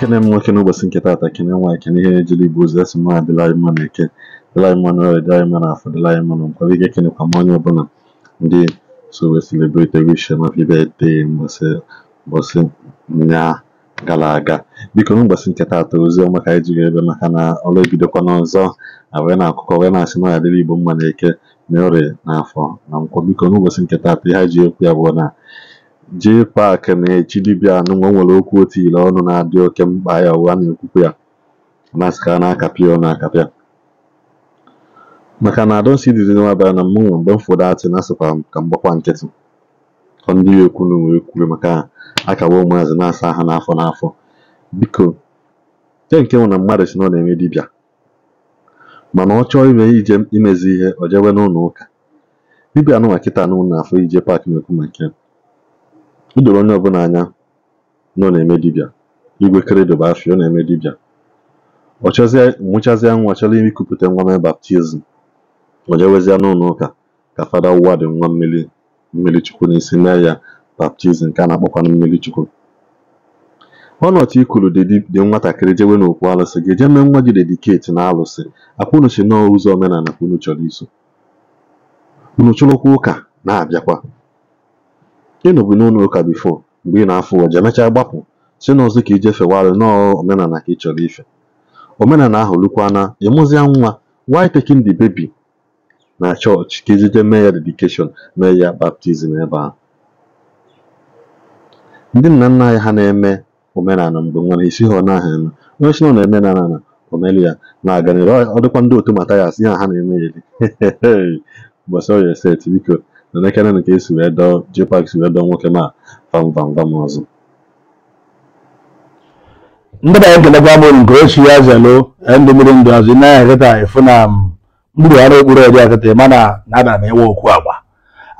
ekene m nwoke n'ụbọchị nke atọ ekene nwa ekene ihe ejili igbo ozi asị mma adịlaghị mma na eke dịlaghị mma na ọrịa dịlaghị mma na afọ dịlaghị mma na nkwaba ike ekenekwa m onye ọbụla ndị so si celebrate wish m happy gara aga biko n'ụbọchị nketa taata ozi ọma ka anyị ebe maka na ebidokwa n'ọzọ awee na akụkọ wee na-asị na adịla igbo mma na eke na ọrịa na afọ na nkwọ biko n'ụbọchị nketa ihe ji bụ na Jay Park na-echi dibịa anụmanụ nwere okwu otu otile ọnụ na-adị oke mkpa ya na n'okwukwe ya masịrị na-akapị ọ na-akapịa maka na I don't see the bịara na mmụọ mgbe m atị na asịkwa ka mgbakwa nkịtị ọ ndị ekwu na wee maka akawa ụmụazị na-asa aha n'afọ n'afọ biko nke nke nwụ na mmadụ si na ọ na-eme dibịa mana ọ chọọ ime ije imezi ihe o jewe n'ụlọ ụka dibịa nụnwa kịta nụ na afọ ije paakị na-ekwu maka ya o doro onye ọbụla anya na ọ na-eme dibịa igwe keredobe afọ ọ na-eme dibịa ọ nwụchazie nwa chọrọ ikupụta nwa mee baptizim o jewezie n'ụlọ ụka ka fada wụwa dị nwa mmiri mmiri chukwu n'isi mee ya baptizim nke a na-akpọkwa mmiri chukwu ọnọchị ikulu dị nwatakịrị jewe n'okwu alụsị ga-eje mee nwa gị dediketi na alụsị akwụnuchi nọọ ụzọ omenala ka unu chọrọ iso unu chụrụkwa ụka na-abịakwa ị nọbụ n'ụlọ ụka bifo mgbe ị na-afụ ụwa, emechaa gbapụ si n'ọzọ ka ije fewalụ nọọ omenala ka ị chọrọ ife omenala ahụ lukwana ịmụzia nwa why taking the baby na chọọchị ka ejide mee ya dedikeshọn mee ya baptizim ebe ahụ ndị nna nna anyị ha na-eme omenala mgbe nwere isi ha ọ naghị eme onye na ọ na-eme na na omelu ya na aganịrị ọ dịkwa ndị otu matayas ya ha na-eme ya eri gbasara ya biko na n'ekere nke esi wee dọọ Jpac si wee dọọ nwoke ma vam ọzọ ndị banye nkelekwa m nke ochi ya zelo ndị mmiri ndụ azụ naya kịta efu na mgburu um, ọrụ okpuru ọdị akịta mana na-ada na ewe okwu agba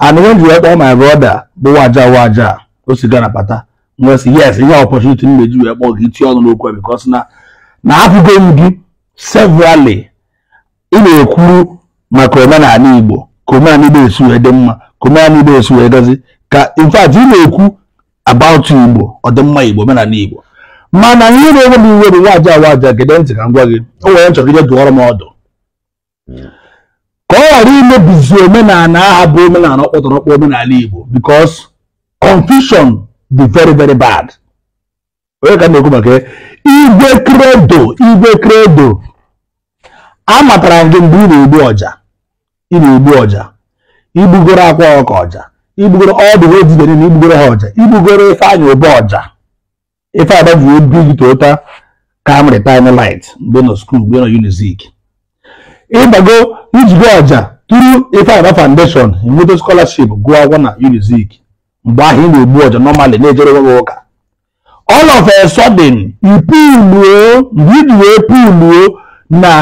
anụghị ji ma brọda bụ waja waja o si gara pata yes ihe ọpọchuniti m meji wee kpọọ gị itinye ọnụ n'okwu na na apụgo m gị severally ị na ekwuru maka omenala Igbo ka omenala igbo esi wee dị mma ka omenala igbo esi wee gazi ka in fact ị na-ekwu about igbo ọdịmma igbo omenala igbo mana ihe na-enwe m iwe bụ nwaja awaja gede ntị ka m gwa gị o nwere nchọrọ ije dụọrọ m ọdụ ka ọ ghara imebizi omenala aha bụ omenala ọkpọtọrọkpọ omenala igbo because confusion dị very very bad onye ka na-ekwu maka igwe kredo igwe kredo amatara m gị mgbe ị na-egbu ọja ị na-egbu ọja igbugoro akwa ọka ọja igbugoro ọdụ odibe niile igbugoro ha ọja igbugoro ife anya obe ọja ife agbaji obi gị toyota camry time light mgbe nọ skuul mgbe nọ unizik ịgbago ijigo ọja tụrụ ife agba foundation enweta scholarship gụọ akwụkwọ na unizik mgbe ahụ ị na-egbu ọja nọmalị na-ejere onwe ụka all of a sudden ipuluo mgbe iji wee puluo na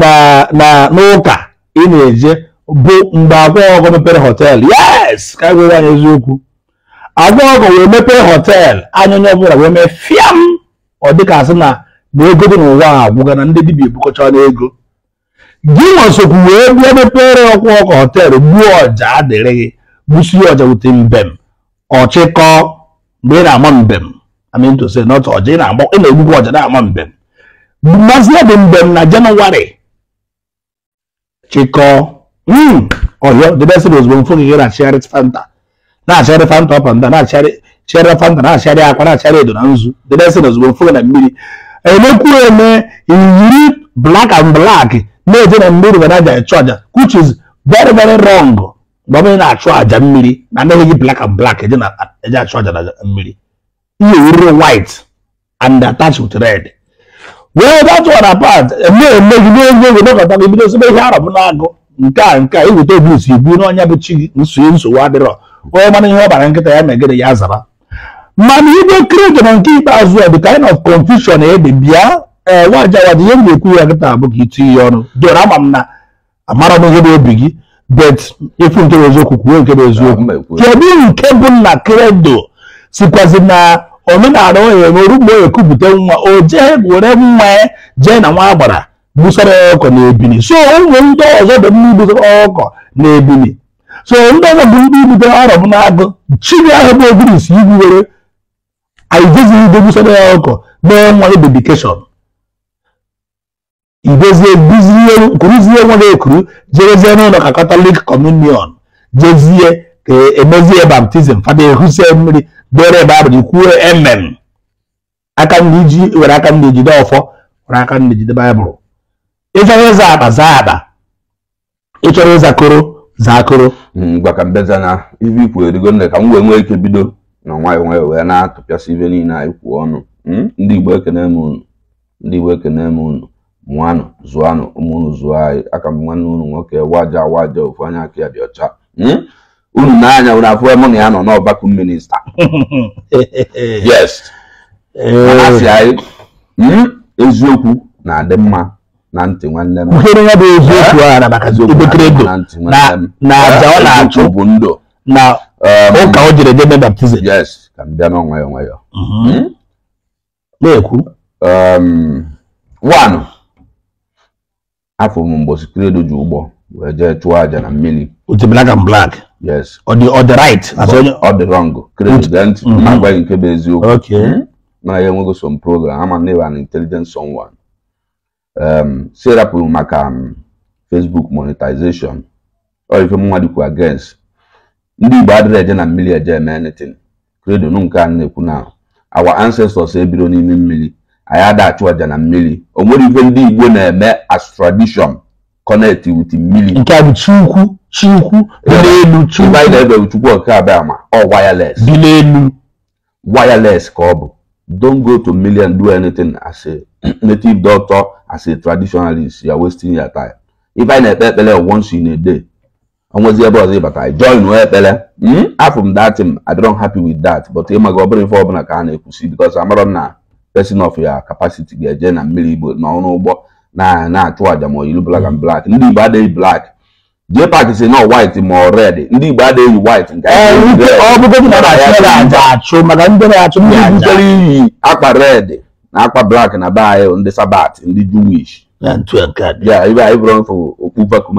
na na n'ụka ị na-eje bụ mgbe Agwaọgụ mepere họteelụ yes ka gwere anyị eziokwu Agwaọgụ wee mepere họteelụ anya onye ọbụla wee mee fiam ọ dịka asị na na ego dị n'ụwa a agwụga na ndị dibịa ebukọchana ego gị nwasokwu wee bịa mepere ọkwa ọkụ họteelụ gbuo ọja adịrị gị gbusie ọja wute mbem ọchịkọ mgbe ị na-ama mbem amintose nọt ọja ị na-egbukwa ọja na-ama mbem mmasị ya dị mbem na jenụwarị chịkọọ ọyọ debesịrị ozugbo mfu gị na-achịgharị fanta na-achịgharị fanta ọpanda na-achịgharị fanta na-achịgharị akwa na-achịgharị edo na nzu debesịrị ozugbo mfu gị na mmiri emekwu eme iyiri black and black na-eje na mmiri were aja ịchụ aja which is very very wrong mgbe ọbụla na-achụ aja mmiri na anaghị gị black and black eje achụ aja na mmiri ihe orire white and attached with red well that's what apart eme eme gị n'oge oge nọkọta gị bido sebe ihe arọbụ na-agụ nke a nke a iweta obi usi ibu na ọnya bụ chi gị nsogbu nsogbu adịrọ onye mana ihe ọ bara nkịta ya megịrị ya zara mana igwe krege na nke ikpeazụ a the kind of confusion ede bịa ee nwajawad ihe m ga-ekwu ya nkịta bụ ka itinye ya ọnụ doro ama m na amara m ihe bụ obi gị bet ịfụ nke bụ eziokwu kwuo nke bụ eziokwu kedu nke bụ na kredo sikwazi na omenala onye na orugbo onye nwa o jee were nwa jee na nwa agbara gbusara ọkọ na ebili so ụmụ ndị ọzọ dị ndị gbusara ọkọ na ebili so ndị ọzọ bụ ndị gbutere ọrọ m na-agụ chiri ahụ bụ ogirisi igwu were aidezighị ide gbusara ya ọkọ mee nwa ya dedikeshọn idezie kuruzie nwa ya ekuru jerezie n'ụlọ ka katọlik kọmunion jezie ka emezie baptizim fada ehusie mmiri bere ebe abụ ikwuo emem aka ndị ji were aka ndị ejide ọfọ were aka ndị ejide baịbụl ịchọrọ ịza akpa zaa akpa ịchọrọ ịza koro zaa koro gwaka mbezana ibe ikwuru erigo nne ka m wee nwee ike bido na nwayọ nwayọ wee na-atụpịasị ibe niile anyị kwuo ọnụ ndị igbo ekene m unu ndị igbo ekene m unu mụanụ zụanụ ụmụ zụọ anyị aka m nwanne unu nwoke waja waja ofu anya aka ya dị ọcha unu n'anya unu afụ mụ na ya nọ n'ọgbakọ minista yes asị eh. anyị hmm, eziokwu na-adị mma na ntị nwanne m buhere ya bụ eziokwu a na maka ibekere ego na aja ọ na-achụ bụ ndụ na um, ụka o jere debe baptizim yes ka m bịa n'onwe onwe ya mhm. hmm? na-ekwu um, one afọ m mgbosi kredo ji ụgbọ wee jee chụọ aja na mmiri otemelaka m blak yes ọ dị ọ dị right ọ dị wrong mm-hmm. nke bụ eziokwu hmm? na ya some program ama na an intelligent someone um e maka um, Facebook monetization ọ ife dịkwa against ndị Igbo adịrị eje na mmiri eje eme anything credo nke a na-ekwu na our ancestors ebiro n'ime mmiri anyị adachụ aja na mmiri o nwere ife ndị Igbo na-eme as tradition connect with mmiri nke a bụ chukwu dị n'elu chukwu anyị na-ebeghị chukwu ọka abịa ma ọ wireless dị n'elu wireless ka ọ bụ don't go to million do anything as a native doctor as a traditionalist you are wasting your time if anyị na-ekpe ekpele once in a day onwezi ebe ọzọ ịbata join ekpele hmm? afọ m datim i don't happy with that but ịma gị ọ ife ọbụla ka a na-ekwusi because amarọ na person of your capacity ga-eje na mmiri igbo na ọrụ ụgbọ na na-achụ aja ma ilu black and black ndị igbo adịghị black JPAC sị na white ma ọred ndị Igbo adịghị white nke ọ bụgodị na aja achụ maka ndị na-achụ ndị butere iyi akpa red na akpa black na be anyị ndị sabat ndị Jewish ibe anyị bụrụ mfụ okpu vakum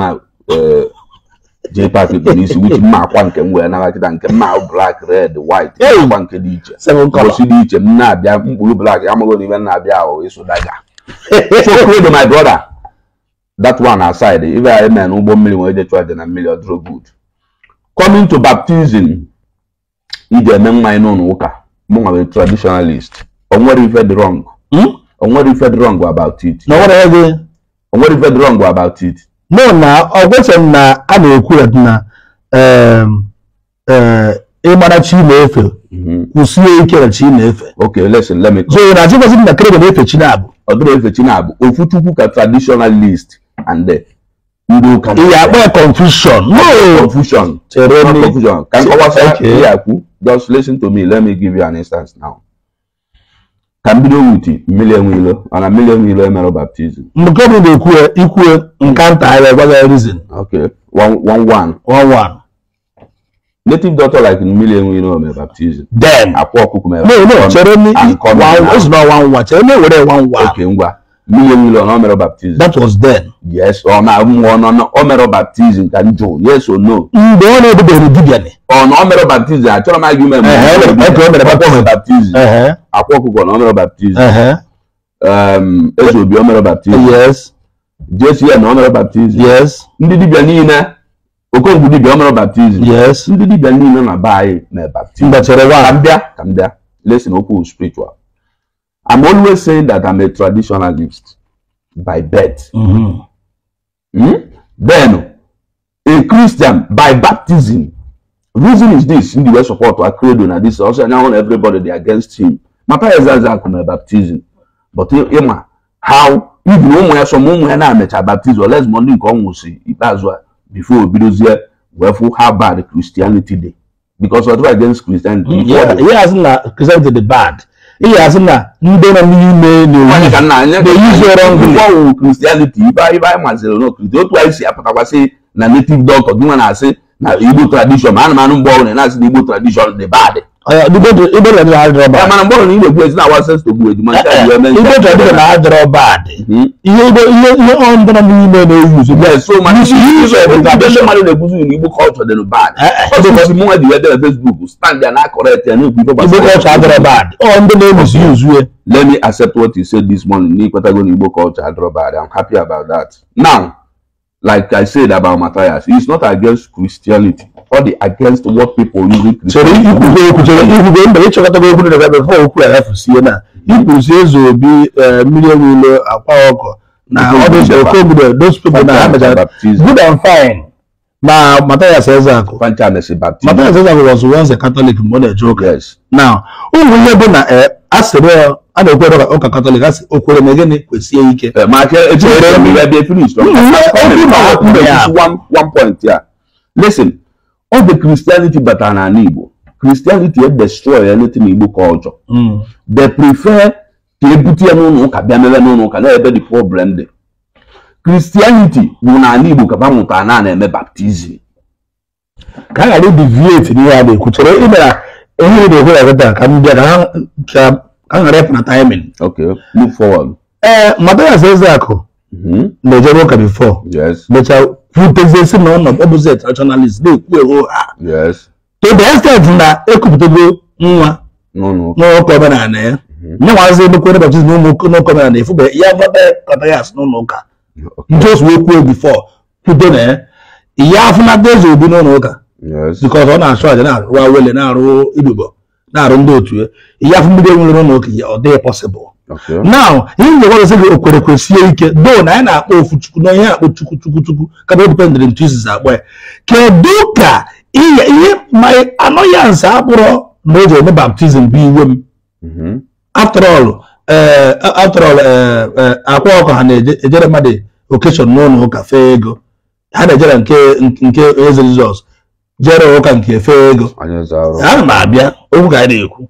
JPAC bụ n'isi wuchi mma akwa nke m wee naghachita nke mma black red white akwa nke dị iche mbosi dị iche m na-abịa mkpụrụ black amaghị n'ime m na-abịa ahụ ịsụ daga so my brother that one aside if I men ụgbọ mmiri nwere ije chụọ na mmiri coming to baptism iji eme mmanya n'ụlọ ụka mụ nwa traditionalist o nwere ife dị wrong o hmm? nwere ife dị wrong about it na nwere ego o nwere ife dị wrong about it no na ọ na a na-ekwu okay listen let me so traditionalist and uh, ndị ụka ịyakpa confusion no confusion chere me confusion ka nkọwasa ịyakwu just listen to me let me give you an instance now ka m million, wit mmiri enweilo million. mmiri enweilo emere baptizim nke bụ na-ekwue ikwue nka nta anyị agwaghị reason okay one one one one one native doctor like million. enweilo mere baptizim then akwa ọkụkụ mere no no chere me one one one chere me were one one okay ngwa mmiri ọ mere baptizim. that was then. yes ọ na-amụ ọnụ na ọ mere baptizim ka m jụ yes or no. mgbe ọ na-edobeghị dibịa ni. ọ na ọ e mere baptizim achọrọ m agụme m. ọ mere baptizim akwa ọkụkọ na ọ mere baptizim. eze obi ọ mere baptizim. yes. jesu ya na ọ mere baptizim. yes. ndị dibịa niile okonkwo dibịa ọ mere baptizim. yes. ndị dibịa niile na be anyị mere baptizim. mbachara nwa. ka m bịa ka m bịa lesin okwu spiritual. I'm always saying that I'm a traditionalist by birth. Mm-hmm. Hmm? Then, a Christian by baptism. Reason is this, in the West support our credo na this also now everybody they against him. My parents are my baptism. But Emma, eh, eh, how even ụmụ ya so ụmụ ya na-amecha baptizim oles mọnde nke ọnwụ si ikpeazụ a bifo obidozie wee fụ how bad christianity day because of against christianity. Mm, yeah, he has na christianity dey bad. ị ga-asị na ka nna n'ime na-eyizụrọngwụ kristianity ibe anyị maziri na okiriti otu anyị si apụtakwasị na native doctor gị nwa na-asị na igbo tradishọn ma anụmanụ mgbe ọbụla na-asị na igbo tradishọn dị bad Eh, eh, na-adịrọ eh, hmm? bad ihe ọndụ na n'ime na-ewu igbo kọlchọ dị bad ọ ndị na-ewuzi uzue let me accept what you said this morning n'ikwetago na igbo culture adịrọ bad i'm happy about that now like i said about matthias it's not against christianity ọ dị against what people using Christianity. Ikwugbe mgbe ịchọkọtago okwu na ebe fọ okwu arafusie na ikwuzi eze obi mmiri ewulo akwa ọkọ na ọdụchere kobudo those people na amechara good and fine ma Matthias Ezeaku Matthias was a Catholic na-eje now ụmụ ihe bụ na a sịrị a na-ekwere ụka katọlik asị o na gịnị kwesie ike ebe kristianity batara n'ala igbo kristianity e destroy anything igbo culture hmm. they prefer ka ebute ya n'ụlọ ụka bịa mebe n'ụlọ ụka na-ebe the problem dị kristianity bụ n'ala igbo ka ba mụtara na na-eme baptizim ka a ghara ibivieti n'ihe a na-ekwu chere imera ihe na-ekwu ya gịta ka m bịa ka ha a ghara ịpụ na taimin ee eh, madara eze akụ hmm. na-ejebe ụka bifo mechaa hụteziesi na ọnọdụ ọ bụzi traditionalist na-ekwu ewu to the extent na ekupụtago nwa n'ụka mm-hmm. omenala ya nyenwazi ebekwere baptizim n'ụka omenala efu bụ ya gbata kọta eh. ya asị n'ụlọ ụka njos wee kwuo bifọ kwudo na ya ihe afụ na eze obi n'ụlọ ụka bikọs ọ na-achụ aja na-arụ awele na-arụ ibubo na-arụ ndị otu ya ihe afụ mbido nwere n'ụlọ ụka ya ọ dịghị pọsịbụl now ihe m ga gị okwere sie ike do na anyị na-akpọ ofu chukwu na ihe akpọ chukwu chukwu chukwu kaba dependent ntu izizi akpọ ya kedu ka ihe ma anọyansi akpụrọ na o ji eme baptizim bụ iwe m mm-hmm. after all eh, after eh, eh, akwa ọkụ ha na-ejere mmadụ okeshọn n'ụlọ ụka fee ego ha na-ejere nke eze jizọs jere ụka nke fee ego ana m abịa okwu ka a na-ekwu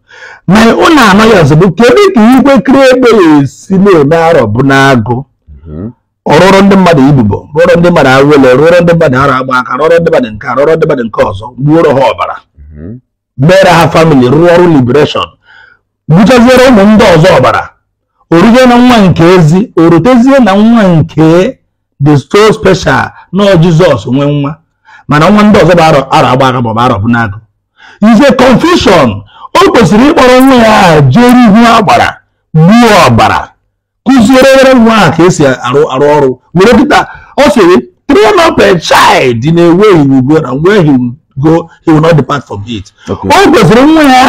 ma ọ na-ama ya ozugbo kedu ka ikwe kiri egbe esi na-eme arọ bụ n'agụ mhm. ọrụrụ ndị mmadụ ibubo rụọrọ ndị mmadụ awele rụọrọ ndị mmadụ arọ agba aka rụọrọ ndị mmadụ nke rụọrọ ndị mmadụ nke ọzọ gbuoro ha ọbara mhm. mere ha famili rụọ ọrụ libereshọn gbuchaziere ụmụ ndị ọzọ ọbara oruzie na nwa nke ezi orutezie na nwa nke the so special nọ Jizọs nwee nwa mana ọnwa ndị ọzọ bụ arọ agba agbaga maọbụ arọ bụ n'agụ ize confusion o kwesịrị ịkpọrọ nwa ya jere ihu agbara gbuo ọbara kụziere nwa a ka esi arụ arụ ọrụ were kịta ọ sịrị train up a child in a na he will go and where he will it o kwesịrị nwa ya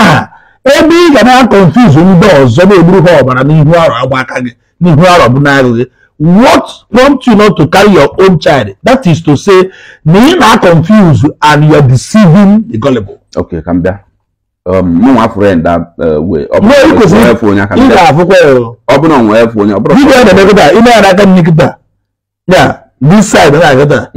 ebe ị ga na-akọnfuz ndị ọzọ na-egburu ha ọbara n'ihu arọ agba aka gị n'ihu arọ bụ n'agụ gị what prompt you not to carry your own child that is to say you are confused and you are deceiving the gullible okay come there um no one friend that uh, way ọ bụrụ na onwe efu uh, onye aka ndị afụkwa You ọ bụrụ na onwe efu onye ọ bụrụ na onwe efu onye ime ya aka nkịta one this side na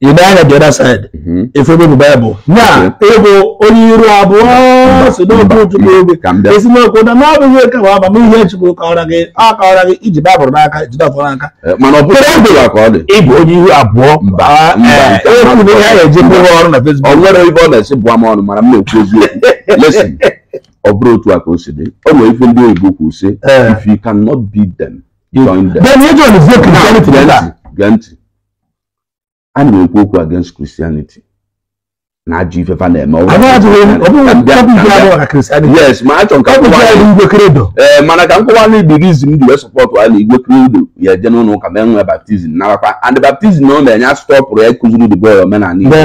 you die on the other side mm-hmm. If you efe babu bible na ego onye iru abụọ si n'oge ojukwu obi esi n'okwu na n'ọbụghị oke ma ọba ihe chukwu kọwara gị ọ kọwara gị iji baịbụl n'aka jide ọfọ n'aka mana ọ bụrụ ọbụla ka ọ dị ịbụ onye ihu abụọ mba ekwuru ihe a na-eji I'm ọrụ to fesbuk ọ nwere ife ọ na-esi bụọ m I'm mana to go. ekwu eziokwu lesin ọ bụrụ otu a ka o si dị o nwere ife to oyibo kwụ si if you cannot beat them join them. then you join the vote in 2020 a na-ekwu okwu against christianity na ajọ ifefa na-eme yes ma achọ nka eh, mana ka nkọwala igbo gị m ji wee sọpọtụ ala igwe kredo ya eje n'ụlọ ụka mee nwee baptizim narakwa and baptizim ọ na-enye asụtọpụrụ ya kụziri the boy omenala igbo mụ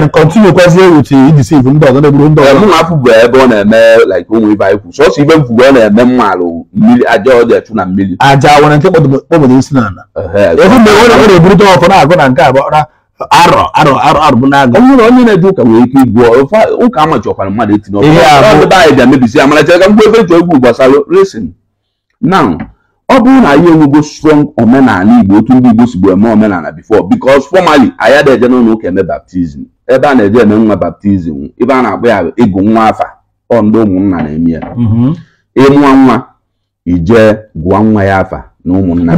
na eh, afụ bụ ebe ọ na-eme like ụmụ ibe anyị kwu sọsọ ibe mfugbe ọ na-eme mma ala mmiri aja ọ dị echu na mmiri aja nwere nke kpọbụrụ isi n'ala arọ arọ arọ arọ bụ na-aga onye onye na-eje ụka nwere ike igwuo ụka amachọkwara mmadụ etinye ọkụ ọdịbe anyị bịa mebisi amaracha ka mgbe ebe ji egwu gbasara resin now ọ bụrụ na anyị enwego strong omenala igbo otu ndị igbo si sigbo eme omenala before because formally anyị eje n'ụlọ ụka eme baptizim ebe a na-eje eme nwa baptizim ebe a na-akpọ ya ịgụ nwa afa ọ ndị ụmụnna na-eme ya mm-hmm. ịmụọ nwa ijee gụọ nwa ya afa na ụmụnna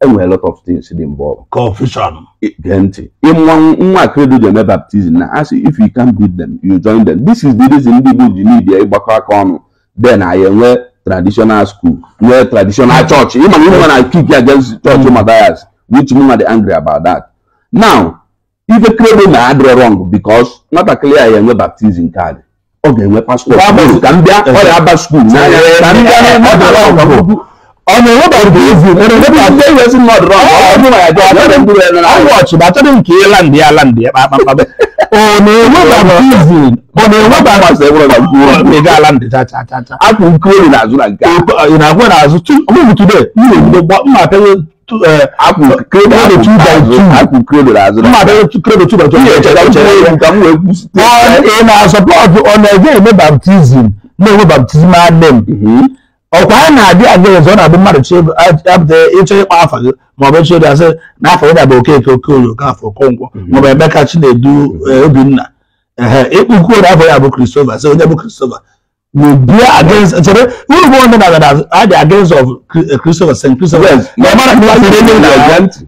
enwere lot of things dị mgbe confusion gee ntị nwa akredo ji eme baptizim na asị if you can beat them you join them this is the reason ndị Igbo ji n'ibia ịgbakọ aka ọnụ then anyị enwee traditional school nwee traditional church ịma na ịnwe na kick against church Matthias which mụnwa the angry about that now ife kredo na-adịrọ wrong because nwatakịrị ya enwe baptizim kaadị ọ ga-enwe pastọ ka m bịa ọ ya aba skuul n'anya ọ m bịa ọmọ ìwé bá rúbọ yìí fún mi níbi àti ẹyẹ sí nọọdù náà ọdún náà yàtọ̀ àtẹnudẹ ndúró ẹnu náà àwọn ọ̀chì bá àtẹnudẹ nkè é láǹdì ẹ láǹdì ẹ pàápàá bẹ. ọmọ ìwé bá rúbọ yìí fún mi ọmọ ìwé bá rúbọ yìí fún mi ọmọ ìwé bá láǹdì tata tata. a kò nkúrò ní àzú na nǹkan. ìnà àkúrò ní àzú tún ọmọ ìwé tún bẹ ní ìwé bọ mma àtẹnudẹ akùnkúrò ní àzú akùnkúrò ní ọkwa a na-adị adịghị ọzọ na-abụ mmadụ apụta ịchọ ịkpa afa gị ma ọ bụ ịchọ asị na afọ gị bụ okeke okoye okafọ okonkwo maọbụ Emeka Chinedu e, Obinna ehe ịkpụkwu ori afọ ya bụ Christopher sị onye bụ Christopher bia against e, chere uru bụ onye na-aga adị against of e, Christopher St. Christopher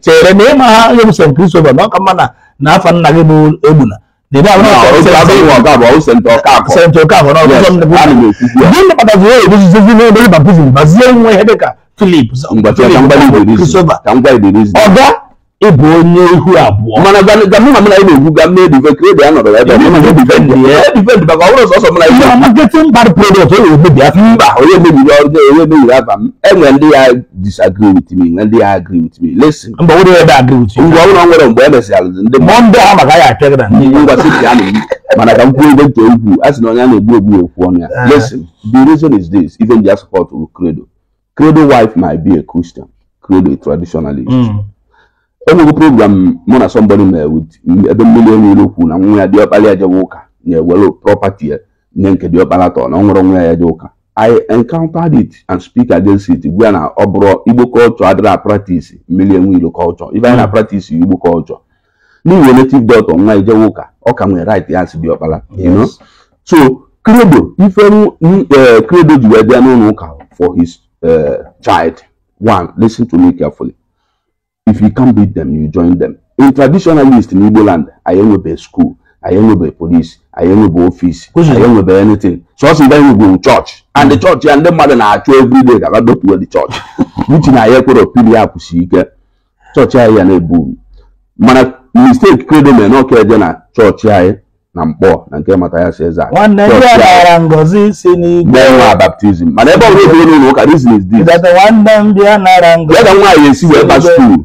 chere na ịma ha onye bụ St. Christopher na ọka mma na afọ nna gị bụ Egbuna dèbí àwọn ọkọ ọsẹ ọsẹ ọkọ àbọ ọsẹ ntọ ọkọ àbọ ọsẹ ntọ ọkọ àbọ náà ọsẹ ntọ ọkọ àbọ bí ní pàtàkì wọ́n èdè ṣiṣẹ́ fún mi lórí baptism bàtí ẹ̀wọ̀n ẹ̀ẹ́dẹ̀ka tulip ọ̀gá ịbụ onye ihu abụọ mana gamma m na na-egwu gamma edive kredi anọrọ ebe edivend maka ọhụrụ sọsọ m na ihe marketing bad product ọ na-emebi afọ mba onye mebiri ọrụ onye mebiri afa m enwe ndị ya disagree with me na ndị ya agree with me lesin mba onye ebe agree with you ngwa ọhụrụ nwere mgbe e mesịrị ndị mọ ndị ha maka ya apịa na ndị ngwa si ka na-eyi mana ka m kwuo ebe ntị egwu a sị na onye a na-egbu egbu okwu ọnụ ya ah. lesin the reason is this even their support will credo credo wife might be a christian credo a traditionalist hmm onye program mụ na somebody mere ebe mmiri enwe n'okwu na nwa ya diọkpara ya jewe ụka na-ewere property nye nke diọkpara tọ na ọ nwa ya je ụka i encountered it and speak against it gwa na ọ bụrụ igbo culture adịrị na practice mmiri enwe ilo culture ibe anyị na practice igbo culture n'ihi native dot nwa ya jewe ụka ọ ka nwere right ya si diọkpara you know so credo ife e, credo ji wee bịa n'ụlọ ụka for his e, child one listen to me carefully if you can't beat them you join them in traditionalist in igbo land anyị enwebe school anyị enwebe police anyị enwebe office anyị enwebe anything sọsọ mgbe anyị nwegwuru church and the church ya ndị mmadụ na-achụ everyday ka ha dopuwe the church uchi na ya ekwere opili ya ike chọọchị anyị ya na-ebu mana mistake kredo mere na eje na chọọchị anyị na mkpọ na nke mata ya si eze baptizim mana ebe ọbụla ofe onye ụka reason is this ya nwaanyị esi wee ba skuul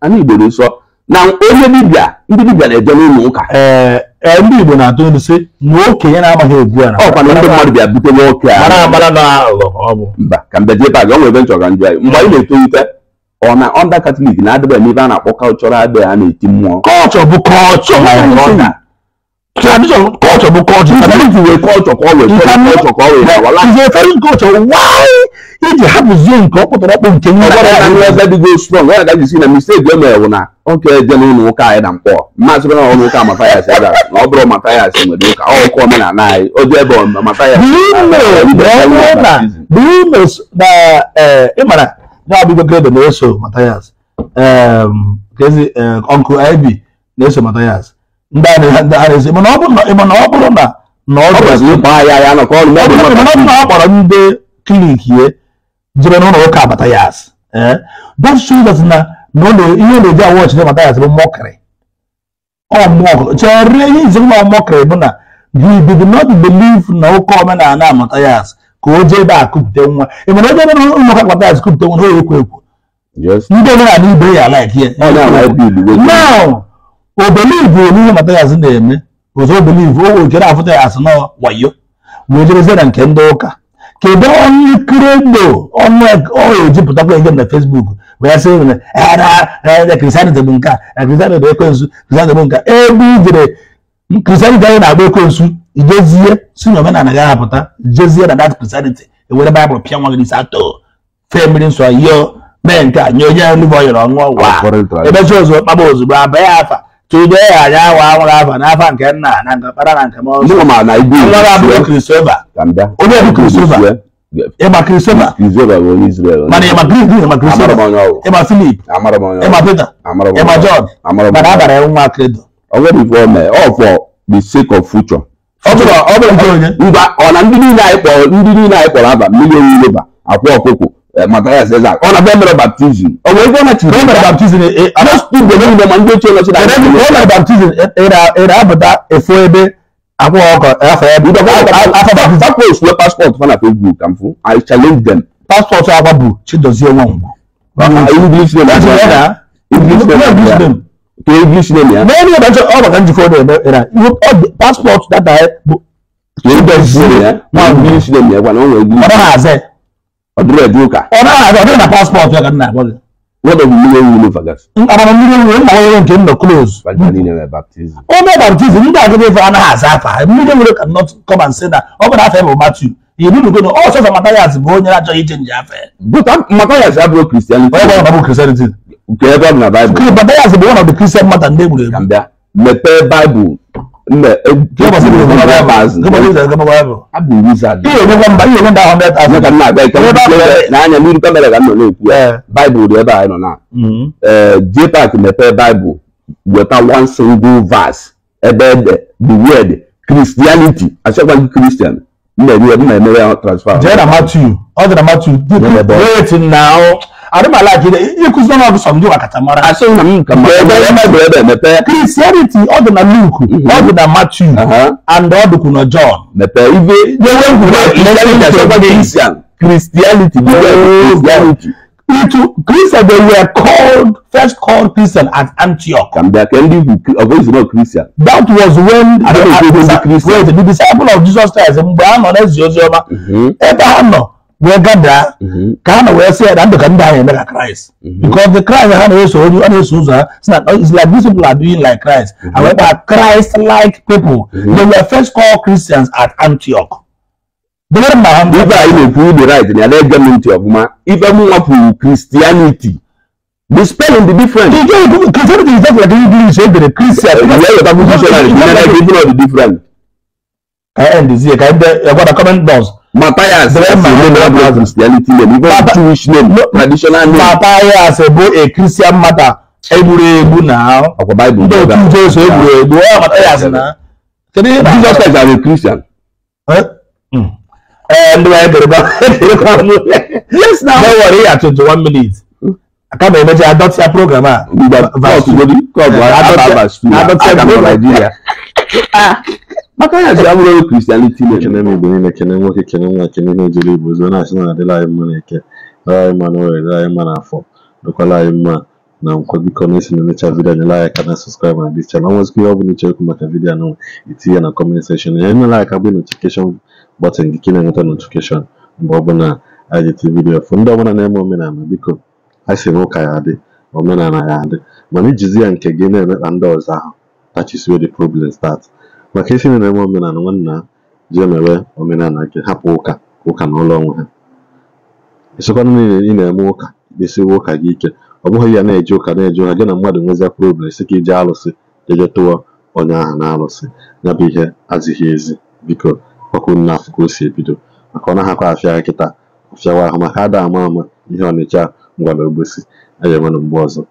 ana Igbo dị nsọ na onye dibịa ndị dibịa na-eje n'ụlọ ụka e, ndị Igbo na-atụ ilu sị na okenye na-agbaghị egwu a. ọkwa na ndị mmadụ bịa bute nwoke a mba ka mbe jebe aga onwe ebe nchọga njụ anyị mgbe anyị na-etolite ọ na ọnda katọlik na-adịba ebe a na-akpọ kalchọrọ adịghị a na-eti mmụọ kọlchọ bụ kọlchọ tradition culture bu culture i believe we culture kọ we culture kọ we awa la. it's a foreign culture why e dey happen zie nke ọkpọtọrọkpọ nke nwa. ọgbọdọ ya na nleta dị go strong ọya dajụ si na mistake wey mere wụ na oke eje na ụlọ ụka anyị na mkpọ mmasị bena ọnụ ụka matayas ebe na ọ bụrụ matayas nwere ụka ọ ụka omenala anyị o ji ebe matayas. bimes na ịmara ya abụgo grade na-eso matayas kezi ọnkụ ib na-eso matayas ọ bụrụ na ọ kpọrọ ndị klinik ya jere n'ụlọ ụka abatayas that shows na ihe na-eji awọ ọchịchị abatayas bụ mọkịrị chere ihe izi nwa mọkịrị bụ na you did not believe na ụka omenala abatayas ka o jee ebe a kupute nwa ị mana ebe ebe ụlọ ụka abatayas kupute nwa ha ekwo ekwo ndị omenala ibe ya like ya now o believe o n'ihe mata yazi na-eme ụzọ o believe o wekere afụta ya asị na wayo wee na nke ndị ụka kedu onye krendo ọnụ ejipụtakwa ihe na fesbuk wee sị na kristianity bụ nke a kristianity bụ ekwensu kristianity bụ nke ebe ijere kristianity anyị na-agba ekwensu ijezie si na omenala gị ahapụta jezie na dat kristianity ewere baịbụl pịa nwa gị n'isi atọ fee mmiri nsọ yọọ mee nke a nye onye nluve ọ yọrọ ọṅụọ wa ebechi ozugbo kpaba ozugbo abịa afa Chido anyị awa anwụrụ afa n'afọ nke nna na nke na nke ma na bụ Kristoba? Ịma Kristoba. bụ onye Israel. Mana ịma Grik Filip. Pita. Jọn. Mana abara nwa Kredo. Ọ bụrụ nke onye. ọ na ndị niile anyị kpọrọ ndị niile anyị kpọrọ aba mmiri onye ile akwụ ọkụkụ Eh, Matthias Ezak ọ na-abịa mere baptizim ọ bụ ebe ọ machiri ọ mere baptizim most people ndị ma ndị ochie nọchi na ndị ọ mere baptizim ịra apụta efu ebe akwụkwọ ọkọ afọ ebe ịdọ afọ baptizim afọ osuwe paspọtụ fana facebook ka mfu i challenge them paspọtụ akwa bụ chidozie nwanwa english name ya to english name ya n'elu ebe ọ maka njikọ ọ na-eme ihe paspọtụ data bụ chidozie nwanwa english name ya gwa na ọ nwere english na paspọtụ ya ka nna gị nwere nwere nke nọ onye baptizim ndị agịrị ife anaghị aza afa mmiri nwere ka not come and na ọ bụrụ matu na ọ sọsọ matayas bụ onye achọghị ije nje afa bụ kristianity matayas bụ one bụ the christian mata ndị egburu egbu mepee baịbụl mbɛ jɔnbɔsi bɛ kɔnɔ bɛ maa zi jɔnbɔsi bɛ kɔnɔ bɛ maa a bɛ wuli sa de. iye ɲɔgɔn ba iye ɲɔgɔn ba hundred thousand ka na bɛɛ kɛmɛ bɛɛ n'a ɲɛ miiri kɛmɛ yɛrɛ ka nɔnɔ ku ɛ baibu de b'a yɛrɛ nɔ na ɛɛ jepa kɛmɛ pɛ baibu wɛta one single verse ɛbɛ dɛ the word christianity a sɛ kɔni christian mbɛ mi yɛ mbɛ mi yɛ transfer. jɛ na matthew ɔ jɛ na matthew. wait now na ịkụzi ọnụ ọgụ sọmdụ maka tamara kristianity ọ dị na luk ọ dị na matthew and ọ dịkwu na john christianity Into Christian, they were called first called Christian at Antioch. And they can live of Israel Christian. That was when the, the, the, the disciple of Jesus Christ, Mgbe a nọ wegada mm-hmm. ka hana waya sai da da ganda ya daga Christ mm-hmm. because the Christ hana ya so you ana so za suna it's like these people are doing like Christ mm-hmm. and we are Christ like people they were first called Christians at Antioch Bẹ́ẹ̀rẹ̀ máa ń bá ibà yìí lè fún the right ní alẹ́ ẹgbẹ́ mi ti ọ̀gbọ́n ibà mú wọn fún Christianity the spelling the difference. Ìjọ ìdúró Christianity is just like English ẹgbẹ̀rẹ̀ Christian. Ìyá Yorùbá fún Christian and Christian are the different. Ẹ ẹ́ ǹdí sí ẹ̀ ká ẹ gbọ́dọ̀ comment box. Matthias Bremer is the name of Christianity name, even Baba, Jewish name, no, traditional name. Matthias Ebo a Christian matter. Egwuregwu na ọkwa Bible. Ndị otu Jesu egwuregwu ọ Matthias na. Kedu ihe na Jesus Christ are a Christian? Ee ndị wee dịrị ba Yes na. No worry ya 21 minutes. Kama emecha adọtị ya program a. Mgbe kọọsụ godi kọọsụ adọtị ya program Nigeria. maka ya ji abụrụ kristianiti ekene m igbo niile kene nwoke kene nwa kene ihe ejiri igbo zo na-asị na adịla anyị mma na eke dara anyị mma na dara anyị mma na afọ dokwala anyị mma na nkwa biko na esi na-emecha vidiyo anyela anyị aka na sọskraịb na dis chanel ọnwezikwa ihe ọ bụla ichekwu maka vidiyo anụ itinye na kọment sekshọn ya enyela aka bụ notifikeshọn bọtịn gị ka na-enweta notifikeshọn mgbe ọbụla anyị ji vidiyo fụ ndị ọbụla na-eme omenala biko ha si na ya adị omenala ya adị mana ijizi ya nke gị na-emekpa ndị ọzọ ahụ that is where the problem starts maka isi na eme omenala nwanna ji emewe omenala nke hapụ ụka ụka na ụlọ onwe ha ịsịkwana niile ị na-eme ụka ikpesiwe ụka gị ike ọ bụghị ya na eji ụka na eji ụka gị na mmadụ nwezia problem sị ka ije alụsị jeje tụọ onye ahụ na alụsị ya bụ ihe azịghị ezi biko ọkụ afọ ka o si ebido maka ọ na naghakwa afịa ya kịta afịawa ahụ maka ada ama ama ihe ọnịcha ngwara ogbosi aya mmanụ mgbe ọzọ